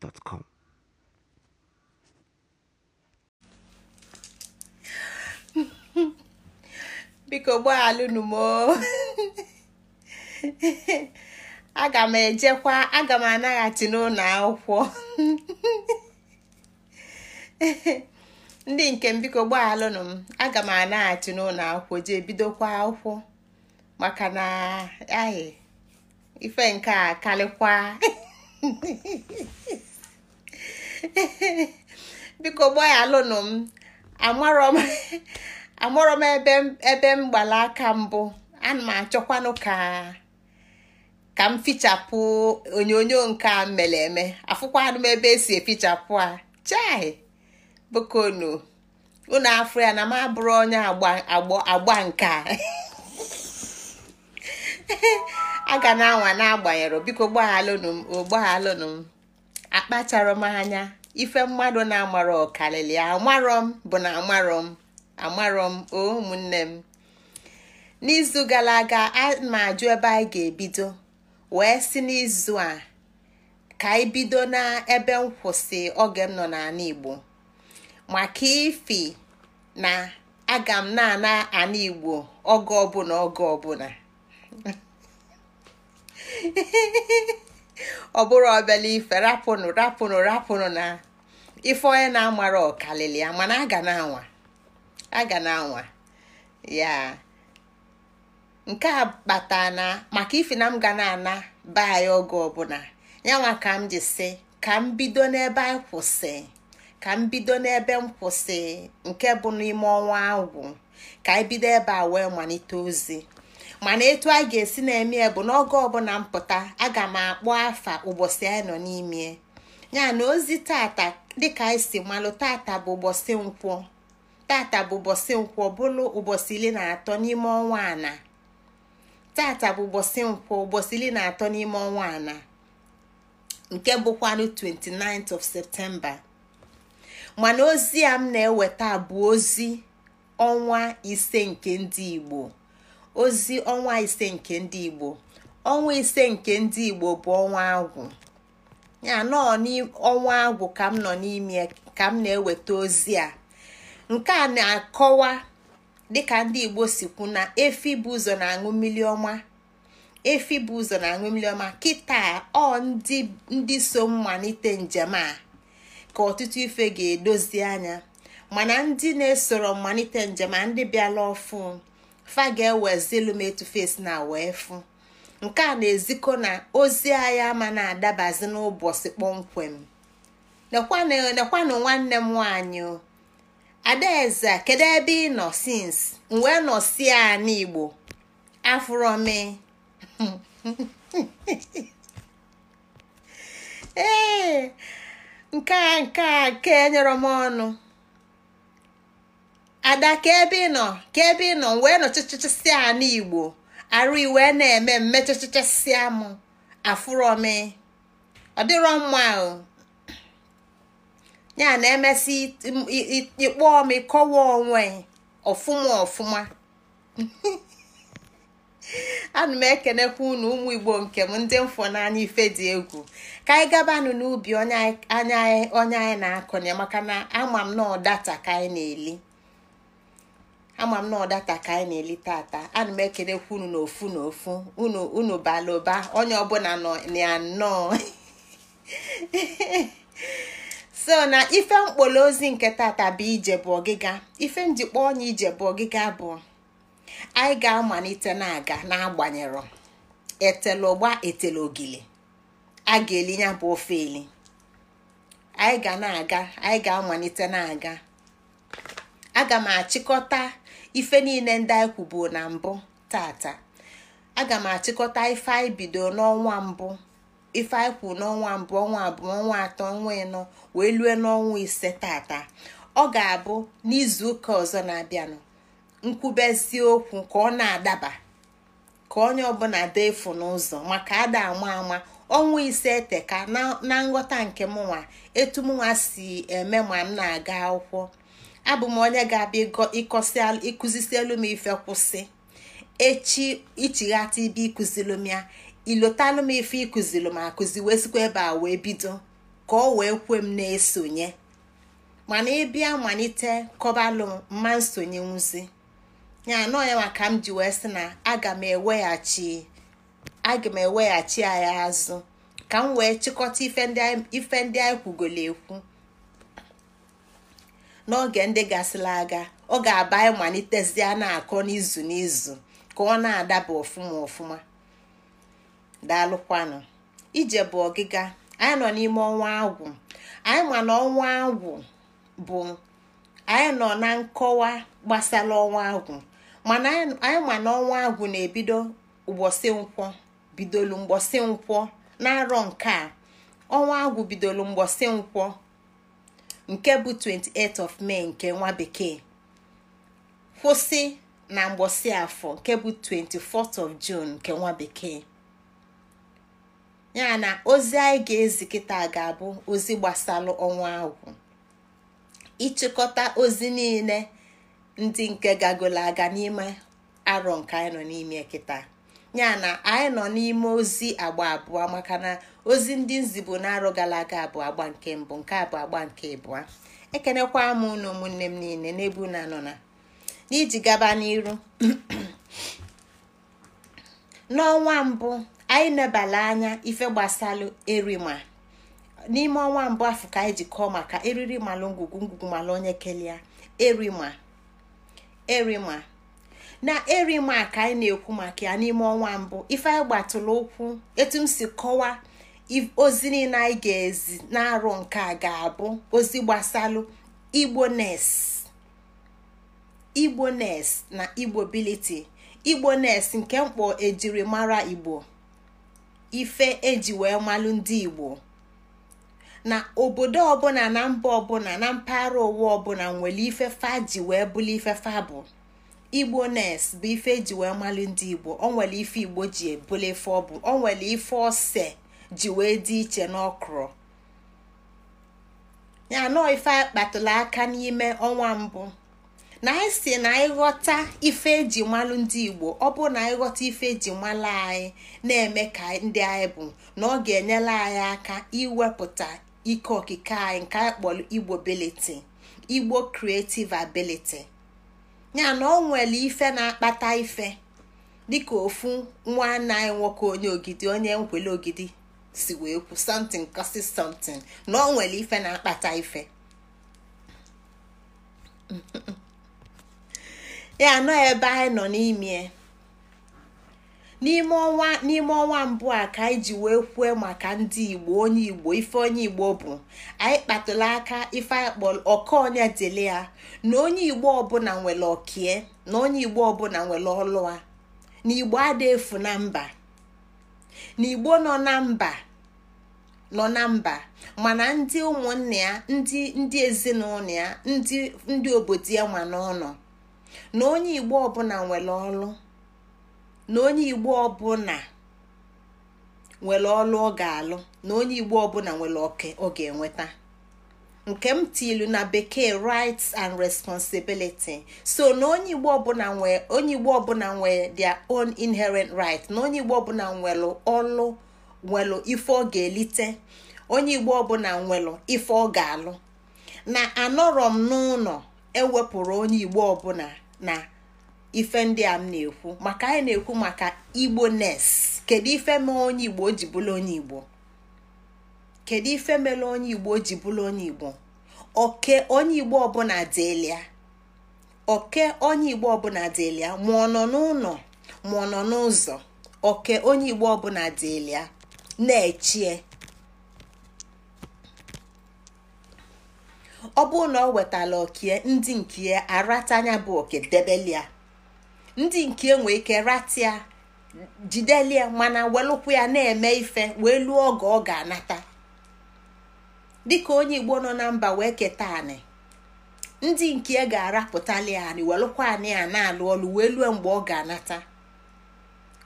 gmail.com. biko gbaghalụnụ m aga m ejekwa aga m anaghachi n'ụlọ akwụkwọ ndị nke m biko gbaghalụnụ m aga m anaghachi n'ụlọ akwụkwọ jee bidokwa akwụkwọ maka na ahị ife nke a karịkwa biko gbaghaalụnụ m amarọ m ebe m gbara aka mbụ ana m achọkwanụ ka ka m fichapụ onyonyo nke a mere eme afụkwanụ m ebe esi efichapụ a chai nụ unu afọ ya na m abụrụ onye agba nke a aga ga na-anwa n'agbanyere biko gbaghalụnụ m o m akpachara m anya ife mmadụ na-amarọ ọkarịrị amarọ m bụ na amarọ m amarọ m o ụmụnne m n'izu gara aga ana ajụ ebe anyị ga-ebido wee si n'izu a ka anyị bido n'ebe nkwụsị oge m nọ n'ala Igbo maka ifi na aga m na-ana ala Igbo oge ọbụla oge ọbụla ọ bụrụ ọbịala ife rapụnụ rapụnụ rapụnụ na ife onye na-amara ọkalịlị ya mana aga na-anwa na-anwa ya nke a kpata na maka ife na m ga na-ana be anyị oge ọbụla yanwa ka m ji sị ka m bido n'ebe anyị kwụsị ka m bido n'ebe m kwụsị nke bụ n'ime ọnwa agwụ ka anyị bido ebe a wee malite ozi mana etu a ga-esi na-eme bụ n'oge ọbụla mpụta aga m akpọ afa ụbọchị anyị nọ n'ime ya na ozi tata dịka anyị si malụ tata bụ ụbọchị nkwọ tata bụ ụbọchị nkwọ bụlụ ụbọchị iri na atọ n'ime ọnwa ana tata bụ ụbọchị nkwọ ụbọchị iri na atọ n'ime ọnwa ana nke bụkwanụ 29th of Septemba mana ozi a m na-eweta bụ ozi ọnwa ise nke ndị Igbo ozi ọnwa ise nke ndị igbo ọnwa ise nke ndị igbo bụ ọnwa agwụ ya nọ ọnwa agwụ ka m nọ n'ime ka m na-eweta ozi a nke a na-akọwa dịka ndị igbo si kwu na efi bụ ụzọ na-aṅụ mmiri ọma efi bụ ụzọ na-aṅụ mmiri ọma kịta ọ ndị ndị so mmalite njem a ka ọtụtụ ife ga-edozi anya mana ndị na-esoro mmalite njem a ndị bịala ọfụ fa ga-ewezilu m etufesi na wee fụ nke a na-ezikọ na ozi anyị ama na-adabazi n'ụbọchị kpọmkwem nekwanụ nwanne m nwanyị adaeze kedu ebe ị nọ sins wee nọ si igbo n'igbo m e. ee nke a nke a nke enyere ọnụ ada ka ebe ị ka ebe ị wee nọ chịchịchịsịa a igbo arụ iwe na-eme mmechịchịchịsịa m afụrọmi ọ dịrọ mma ahụ ya na emesị ịkpọọ m ịkọwa onwe ọfụma ọfụma ana m ekenekwa unu ụmụ igbo nke m ndị mfọ n'anya ife dị egwu ka anyị gabanụ n'ubi onye anyị na-akọnye maka na ama m na ọ data ka anyị na-eli ama m na ọdata ka anyị na-eli tata ana m ekelekwa unu n'ofu ofu na ofu unu bala ụba onye ọbụla nọ nnọọ so na ife mkpọrọ ozi nke tata bụ ije bụ ọgịga ife njikpa onye ije bụ ọgịga bụ anyị ga-amalite na-aga n'agbanyero etele ụgba etele ogili a ga-eli ya bụ ofe eli anyị ga na-aga anyị ga-amalite na-aga aga m achịkọta ife niile ndị anyị kwubu na mbụ tata aga m achịkọta ife anyị bido n'ọnwa mbụ ife anyị kwuru n'ọnwa mbụ ọnwa abụọ ọnwa atọ ọnwa ịnọ wee lue n'ọnwa ise tata ọ ga-abụ n'izu ụka ọzọ na-abịanụ nkwubezi okwu ka ọ na-adaba ka onye ọbụla dee efu n'ụzọ maka ada ama ama ọnwa ise eteka na nghọta nke mụnwa etu mụnwa si eme ma m na-aga akwụkwọ abụ m onye ga-abịa ịkụzisielu m ife kwụsị echi ichighata ibe ịkụzilụ m ya ilotalụ m ife ịkụzilụ m akụzi wee sikwa ebe a wee bido ka ọ wee kwe m na-esonye mana ịbịa malite kọbalụ m mma nsonye nwụzi ya anọ ya maka m ji wee sị na aga m eweghachi aga m eweghachi ya azụ ka m wee chịkọta ife ndị anyị kwugolo ekwu n'oge ndị gasịla aga ọ ga-aba anyị malitezie na-akọ n'izu n'izu ka ọ na-adaba ọfụma ọfụma daalụkwanụ ije bụ ọgịga anyị nọ n'ime ọnwa agwụ anyị ma na ọnwa agwụ bụ anyị nọ na nkọwa gbasara ọnwa agwụ mana anyị ma na ọnwa agwụ na-ebido ụbọchị nkwọ bidolu mgbọsị nkwọ na arọ nke a ọnwa agwụ bidolu mgbọsị nkwọ nke bụ 28 of May nke nwa bekee kwụsị na mgbọsị afọ nke bụ 24th of June nke nwa bekee ya na ozi anyị ga-ezi kịta ga-abụ ozi gbasara ọnwa ahụ ịchịkọta ozi niile ndị nke gagolo aga n'ime arọ nke anyị nọ n'ime kịta ya na anyị nọ n'ime ozi agba abụọ maka na ozi ndị nzibo na-arụ gara aga abụọ agba nke mbụ nke abụọ agba nke abụọ ekenekwa m ụnụ ụmụnne m niile n'ebu unu anọ na n'iji gaba n'iru n'ọnwa mbụ anyị nebala anya ife gbasalụ erima n'ime ọnwa mbụ afọ ka anyị ji kọọ maka eriri malụ ngwugwu ngwugwu malụ onye kelia erima erima na eri erimak anyị na-ekwu maka ya n'ime ọnwa mbụ ife anyị gbatụrụ ụkwụ etu m si kọwa ozi niile anyị ga-ezi na nke a ga-abụ ozi gbasalụ igbo nes na igbo nes nke mkpọ ejiri mara igbo ife eji wee malụ ndị igbo na obodo ọbụla na mba ọbụla na mpaghara ụwa ọbụla nwere ife fa ji wee bụlụ ife fa bụ igbo nes bụ ife eji wee malụ ndị igbo onwere nwere ife igbo ji ebule ife ọ bụ o nwere ife ose ji wee dị iche n'ọkrọ ya nọọ ife anyị aka n'ime ọnwa mbụ na anyị e si na anyị ghọta ife eji malụ ndị igbo ọ bụ na anyị ghọta ife eji malụ anyị na-eme ka ndị anyị bụ na ọ ga-enyere anyị aka iwepụta ike okike anyị nke anyị kpọrọ igbo ability igbo creative ability. ya na ọ nwere ife na-akpata ife dịka ofu nwa anaghị nwoke onye ogidi onye nkwele ogidi si wee kwu something kosi something na ọ nwere ife na-akpata ife ya nọ ebe anyị nọ n'ime n'ime ọnwa n'ime ọnwa mbụ a ka anyị ji wee kwue maka ndị igbo onye igbo ife onye igbo bụ anyị kpatụla aka ife anyị kpọrọ ọkaọnya ya na onye igbo ọbụla nwere ọkie na onye igbo ọbụla nwere ọlụa na igbo ada efu na mba na igbo nọ na mba nọ na mba mana ndị ụmụnne ya ndị ndị ezinụlọ ya ndị ndị obodo ya ma n'ụlọ na onye igbo ọbụla nwere ọlụ na onye igbo ọbụla nwere ọlụ ọ ga-alụ na onye igbo ọbụla nwere oke ọ ga-enweta nke m tilu na bekee rights and responsibility so na onye igbo ọbụla nwee onye igbo ọbụla nwee their own inherent right na onye igbo ọbụla nwelụ ọlụ nwelụ ife ọ ga-elite onye igbo ọbụla nwelụ ife ọ ga-alụ na anọrọ m n'ụlọ ewepụrụ onye igbo ọbụla na ife ndị a m na-ekwu maka anyị na-ekwu maka igbo nes kedu ife mere onye igbo o ji bụrụ onye igbo kedu ife mere onye igbo o ji bụrụ onye igbo oke onye igbo ọbụla dịlia oke onye igbo ọbụla dịlia ma ọ nọ n'ụlọ ma ọ nọ n'ụzọ oke onye igbo ọbụla dịlia na-echie ọ bụrụ na ọ wetala okie ndị nke ya aratanya bụ oke debelia ndị nke enwe ike ratia jidelie mana welụkwu ya na-eme ife wee lụọ oge ọ ga-anata dịka onye igbo nọ na mba wee keta anị ndị nke e ga-arapụtali anị welụkwa anị a na-alụ ọlụ wee lụọ mgbe ọ ga-anata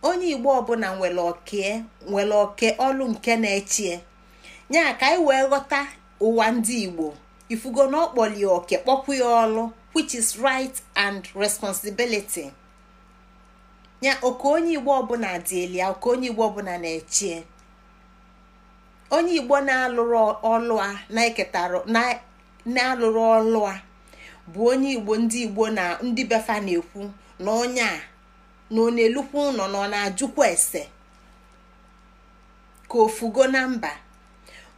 onye igbo ọbụla nwere oke nwere oke ọlụ nke na-echie nya ka anyị wee ghọta ụwa ndị igbo ifugo na ọkpọlie oke kpọpụ ya ọlụ which is right and responsibility. ya oke onye igbo ọbụla dị elu ya oke onye igbo ọbụla na-echie onye igbo na-alụrụ ọlụa a na-eketara na-alụrụ ọlụa bụ onye igbo ndị igbo na ndị befa na-ekwu na onye a na ọ na-elukwa ụlọ na ọ na-ajụkwa ese ka ofugo na mba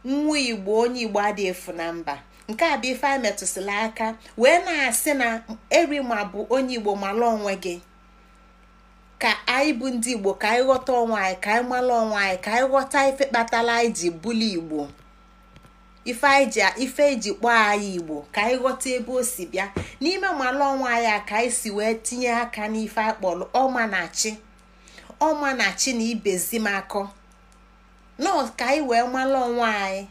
nwa igbo onye igbo adịghị efu na mba nke a bụ ife a metụsịla aka wee na-asị na eri ma bụ onye igbo mala onwe gị ka anyị bụ ndị igbo ka anyị ghọta onwe anyị ka anyị mara onwe anyị ka anyị ghọta ife kpatara anyị ji bụli igbo ife anyị ife eji kpọọ anyị igbo ka anyị ghọta ebe o si bịa n'ime mara onwe anyị a ka anyị si wee tinye aka n'ife akpọrọ kpọrọ ọma na chi ọma na chi na ibezi m akọ ka anyị wee mara onwe anyị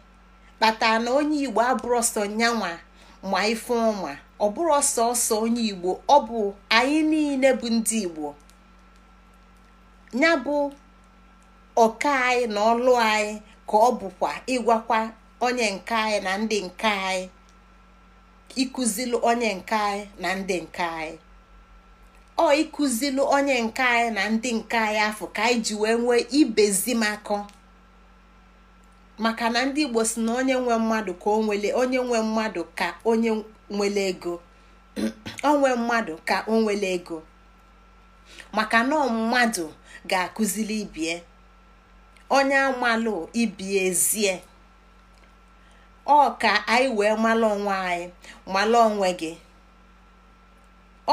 kpatara na onye igbo abụrụ ọsọ nyanwa ma ife ọma ọ bụrụ ọsọ ọsọ onye igbo ọ bụ anyị niile bụ ndị igbo ya bụ ọka anyị na ọlụ anyị ka ọ bụkwa ịgwakwa onye nke anyị na ndị nke anyị ịkụzilu onye nke anyị na ndị nke anyị ọ ịkụzilu onye nke anyị na ndị nke anyị afọ ka anyị ji wee nwee ibezimakọ maka na ndị igbo si na onye nwe mmadụ ka onwele onye nwe mmadụ ka onye nwele ego onwe mmadụ ka o ego maka na mmadụ ga akuziri ibie onye amalụ ibie ezie ọ ka anyị wee mala onwe anyị mala onwe gị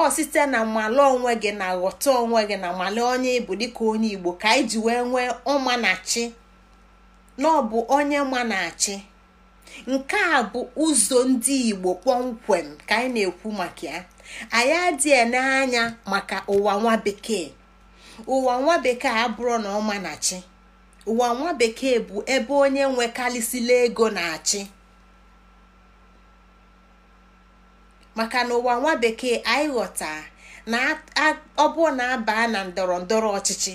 ọ site na mala onwe gị na ghọta onwe gị na mala onye ịbụ dịka onye igbo ka anyị ji wee nwee ọma na bụ onye ma na nke a bụ ụzọ ndị igbo kpọmkwem ka anyị na-ekwu maka ya anyị adịghị anya maka ụwa nwa bekee ụwa nwa bekee abụrụ na ọma na chi ụwa nwa bekee bụ ebe onye nwekarịsịla ego na-achị maka na ụwa nwa bekee anyị ghọta na ọ bụ na aba na ndọrọ ndọrọ ọchịchị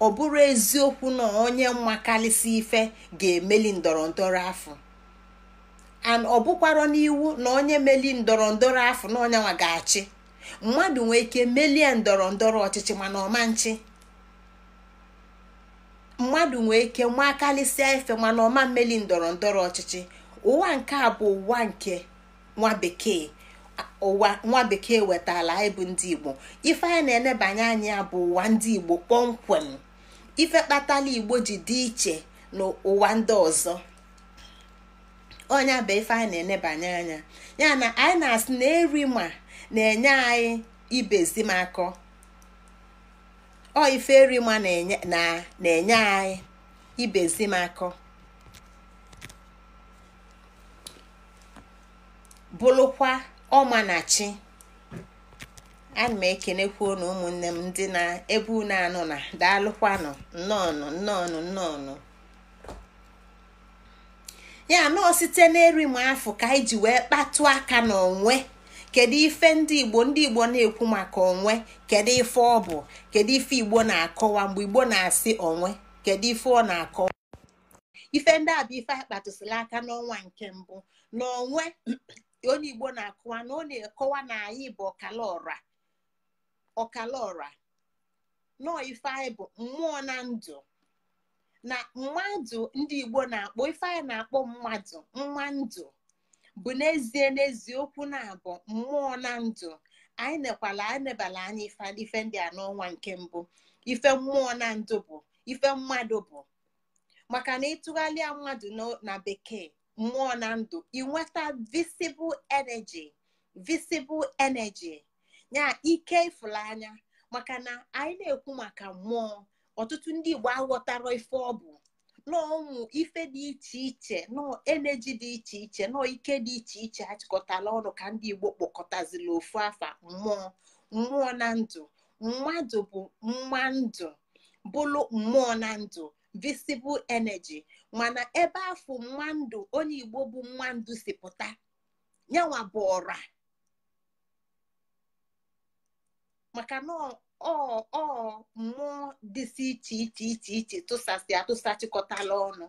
ọ bụrụ eziokwu na onye mmakarịsị ife ga-emeli ndọrọ ndọrọ afọ ọ bụkwara n'iwu na onye meli ndọrọ ndọrọ afọ na onye ga-achị mmadụ nwee ike melie ndọrọ ndọrọ ọchịchị mana ọmanchi mmadụ nwee ike nwa karịsịa efe mana ọma mmeli ndọrọ ndọrọ ọchịchị ụwa nke a bụ ụwa nke nwa bekee ụwa nwa bekee wetala anyị bụ ndị igbo ife anyị na-enebanye anya bụ ụwa ndị igbo kpọmkwem ife kpatala igbo ji dị iche n'ụwa ndị ọzọ ọnya bụ ife anyị na-enebanye anya ya na anyị na-asị na eri ma na-enye anyị ibezi makọ ọ ife rima na-enye anyị ibezi makọ bụrụkwa ọmanachi ana m ekenekwa na ụmụnne m ndị na-ebu na-anụ na daalụkwanụ nnọọnụ nnọọnụ nnọọnụ ya nọọ site na erim afọ ka anyị ji wee kpatụ aka n'onwe kedu ife ndị igbo ndị igbo na-ekwu maka onwe kedu ife ọ bụ kedu ife igbo na-akọwa mgbe igbo na-asị onwe kedu ife ọ na-akọwa ife ndị abụ bụ ife akpatụsịla aka n'ọnwa nke mbụ na onwe onye igbo na-akọwa na ọ na-ekọwa na anyị bụ ọkala ọra ọkala nọọ ife anyị bụ mmụọ na ndụ na mmadụ ndị igbo na-akpọ ife anyị na-akpọ mmadụ mma ndụ bụ n'ezie n'ezie na-abụ mmụọ na ndụ anyị nekwala anyị nebala anya ife ife ndị a n'ọnwa nke mbụ ife mmụọ na ndụ bụ ife mmadụ bụ maka na ịtụgharịa mmadụ na bekee mmụọ na ndụ inweta visible energy visible energy nya ike ịfụrụ anya maka na anyị na-ekwu maka mmụọ ọtụtụ ndị Igbo aghọtara ife ọ bụ n'ọnwụ ife dị iche iche nọọ eneji dị iche iche nọ ike dị iche iche achịkọtala ọnụ ka ndị Igbo kpọkọtazila ofu afa mmụọ mmụọ na ndụ mmadụ bụ mma ndụ bụlụ mmụọ na ndụ visibụl eneji mana ebe afọ mma ndụ onye Igbo bụ mma si pụta yanwa bụ ọra maka na ọ mmụọ dịsị iche iche iche iche tụsasị atụsachịkọtala ọnụ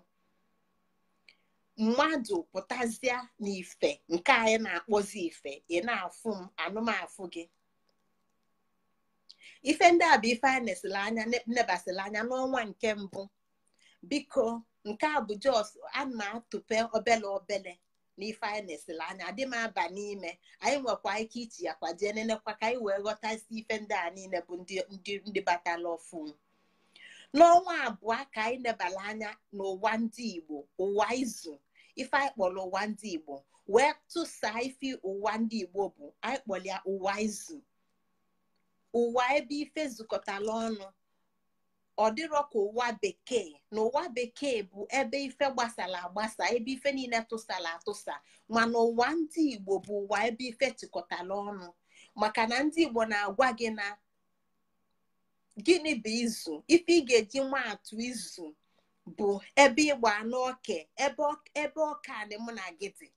mmadụ pụtazịa n'ife nke anyị na-akpọzi ife ị afụ m anụmafụ gị ife ndị a bụ ife anyị nesịla anya nebasịla anya n'ọnwa nke mbụ biko nke a bụ jos ana atụpe obele obele na ife anyị na-esila anya adị m aba n'ime anyị nwekwa ike ichi ya kwajee nenekwa ka anyị wee ghọta isi ife ndị a niile bụ ndị batala ọfụ n'ọnwa abụọ ka anyị nebala anya n'ụwa ndị Igbo ụwa izu ife anyị kpọrọ ụwa ndị Igbo wee tụsaa ife ụwa ndị Igbo bụ anyị kpọrọ ya ụwa izu ụwa ebe ife zukọtala ọnụ ọ dịrọ ka ụwa bekee na ụwa bekee bụ ebe ife gbasara agbasa ebe ife niile tụsara atụsa mana ụwa ndị Igbo bụ ụwa ebe ife tikọtara ọnụ maka na ndị Igbo na-agwa gị na gịnị bụ izu ife ị ga-eji maatụ izu bụ ebe ịgba anụ ebe ọka anị mụ na gị dị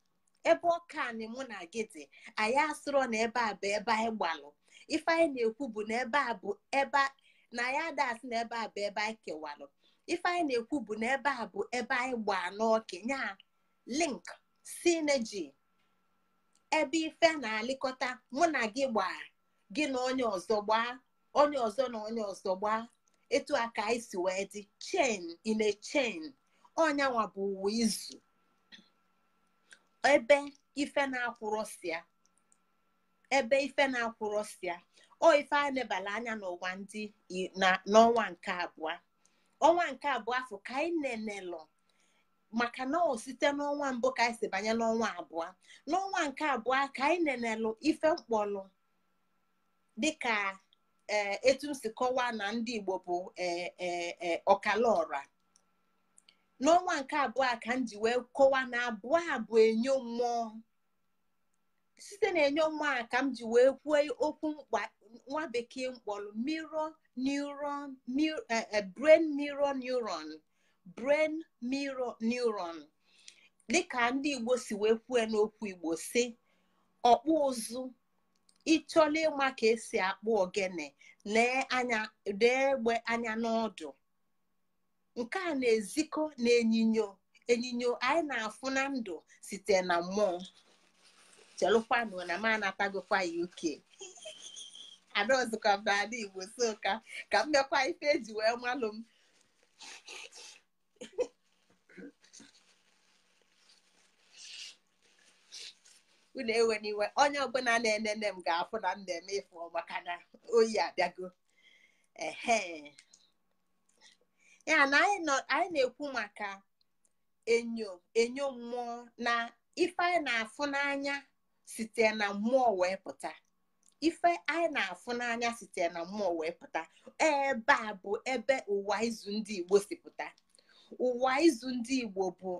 ebe ọka anị mụ na gị dị anyị asụrọ na ebe a bụ ebe anyị gbalụ ife anyị na-ekwu bụ na ebe a bụ ebe na ya das na ebe a bụ ebe anyị kewalụ ife anyị na-ekwu bụ na ebe a bụ ebe anyị gbaa n'ọkenya link sineji ebe ife na-alịkọta mụ na gị gbaa gị na onye ọzọ gbaa onye ọzọ na onye ọzọ gbaa etu a ka anyị si wee dị chen in chen ọnyanwa bụ uwe izu ebe ife na-akwụrọsịa ebe o oh, ife a lebara anya n'ụwa oh, ndị n'ọnwa nke abụọ ọnwa nke abụọ afọ ka anyị nenelụ maka na ọ site n'ọnwa mbụ ka anyị si banye n'ọnwa abụọ n'ọnwa nke abụọ ka anyị nenelụ ife mkpọlụ dịka etu m si kọwaa na ndị Igbo bụ ọkalaọra n'ọnwa nke abụọ ka m ji wee kọwaa na abụọ a bụ enyo mmụọ site na enyo mmụọ ka m ji wee kwuo okwu mkpa nwa bekee mkpọrọ mirror eh, eh, brain mirror neuron brain dịka ndị igbo si wee kwue n'okwu igbo si ọkpụ ụzụ ịchọla ịma ka esi akpụ ogene lee anya egbe anya n'ọdụ nke a na-ezikọ na enyinyo enyinyo anyị na-afụ na ndụ site na mmụọ chelụkwanụ na m anatagokwa ya uke anọzikwa m n'ala Igbo so ka ka m mekwa ife ji wee malụ m unu iwe onye ọbụla na-enene m ga-afụ na m na-eme ife maka na oyi abịago ya na anyị na-ekwu maka enyo enyo mmụọ na ife anyị na-afụ n'anya site na mmụọ wee pụta ife anyị na-afụ n'anya sitere na mmụọ wee pụta ebe a bụ ebe ụwa izu ndị igbo si pụta ụwa izu ndị igbo bụ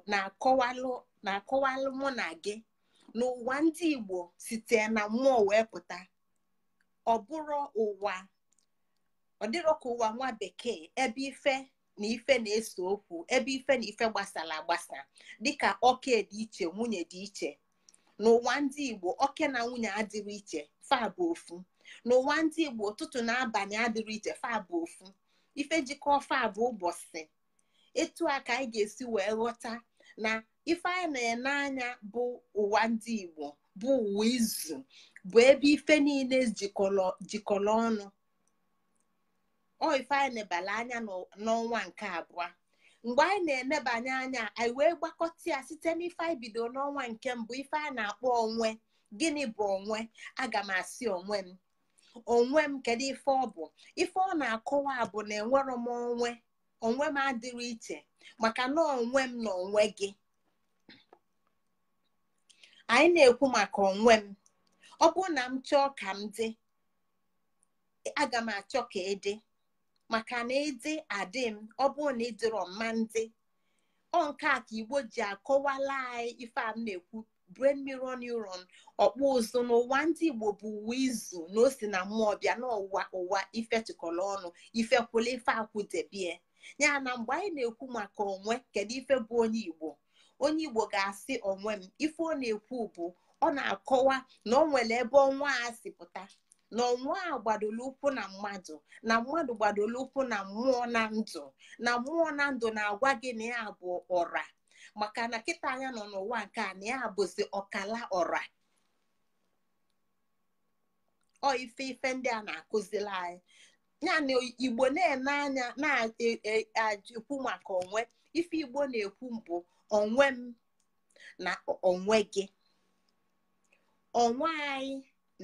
na-akọwalụ mụ na gị na ụwa ndị igbo sitere na mmụọ wee pụta ọ bụrụ ụwa ọ dịrọ ka ụwa nwa bekee ebe ife na ife na-eso okwu ebe ife na ife gbasara agbasa dịka ọka dị iche nwunye dị iche n'ụwa ndị igbo oke na nwunye adịrị iche fa bụ ofu n'ụwa ndị igbo ụtụtụ na abalị adịrị iche fa bụ ofu ife jikọ fa bụ ụbọchị etu a ka anyị ga-esi wee ghọta na ife anyị na-ene anya bụ ụwa ndị igbo bụ uwe izu bụ ebe ife niile jikọrọ ọnụ ọ ife anyị ebala anya n'ọnwa nke abụọ mgbe anyị na-emebanye anya anyị wee gbakọta ya site n'ife anyị bido n'ọnwa nke mbụ ife a na-akpọ onwe gịnị bụ onwe aga m asị onwe m onwe m kedu ife ọ bụ ife ọ na-akọwa bụ na enwero m onwe onwe m adịrị iche maka na onwe m na onwe gị anyị na-ekwu maka onwe m ọ bụrụ na m chọọ ka m dị aga m achọ ka ị dị maka na ịdị adị m ọ bụrụ na ịdịrọ mma ndị ọ nke a ka igbo ji akọwala anyị ife a m na-ekwu brain mirror neuron ọkpụ ụzụ n'ụwa ndị igbo bụ uwe izu na o si na mmụọ bịa n'ụwa ụwa ife tụkọrọ ọnụ ife kwụla ife akwụdebie ya na mgbe anyị na-ekwu maka onwe kedu ife bụ onye igbo onye igbo ga-asị onwe m ife ọ na-ekwu bụ ọ na-akọwa na ọ nwere ebe ọnwa a si pụta na ọnwa a gbadoro ụkwụ na mmadụ na mmadụ gbadolu ụkwụ na mmụọ na ndụ na mmụọ na ndụ na-agwa gị na ya bụ ọra maka na kịta anya nọ n'ụwa nke a na ya bụzi ọkala ọra ọ ife ife ndị a na-akụziri anyị yana igbo na-ene na-ekwu maka onwe ife igbo na-ekwu mbụ onwe m na onwe gị onwe anyị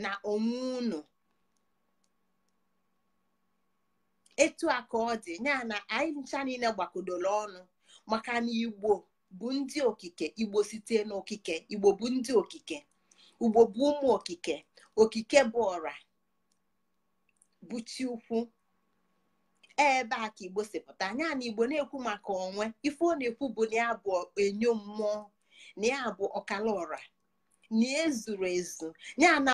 na onwe unu etu a ka ọ dị ya na anyị ncha niile gbakọdoro ọnụ maka na igbo bụ ndị okike igbo site n'okike igbo bụ ndị okike ugbo bụ ụmụ okike okike bụ ọra bụ chi ukwu ebe a ka igbo sipụta anya na igbo na-ekwu maka onwe ife ọ na-ekwu bụ na ya bụ enyo mmụọ na bụ ọkala ọra na ezuru ezu ya